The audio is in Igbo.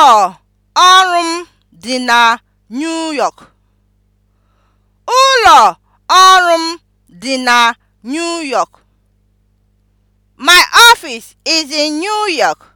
Ụlọ ọrụ m dị na New York. Ụlọ ọrụ m dị na New York. My office is in New York.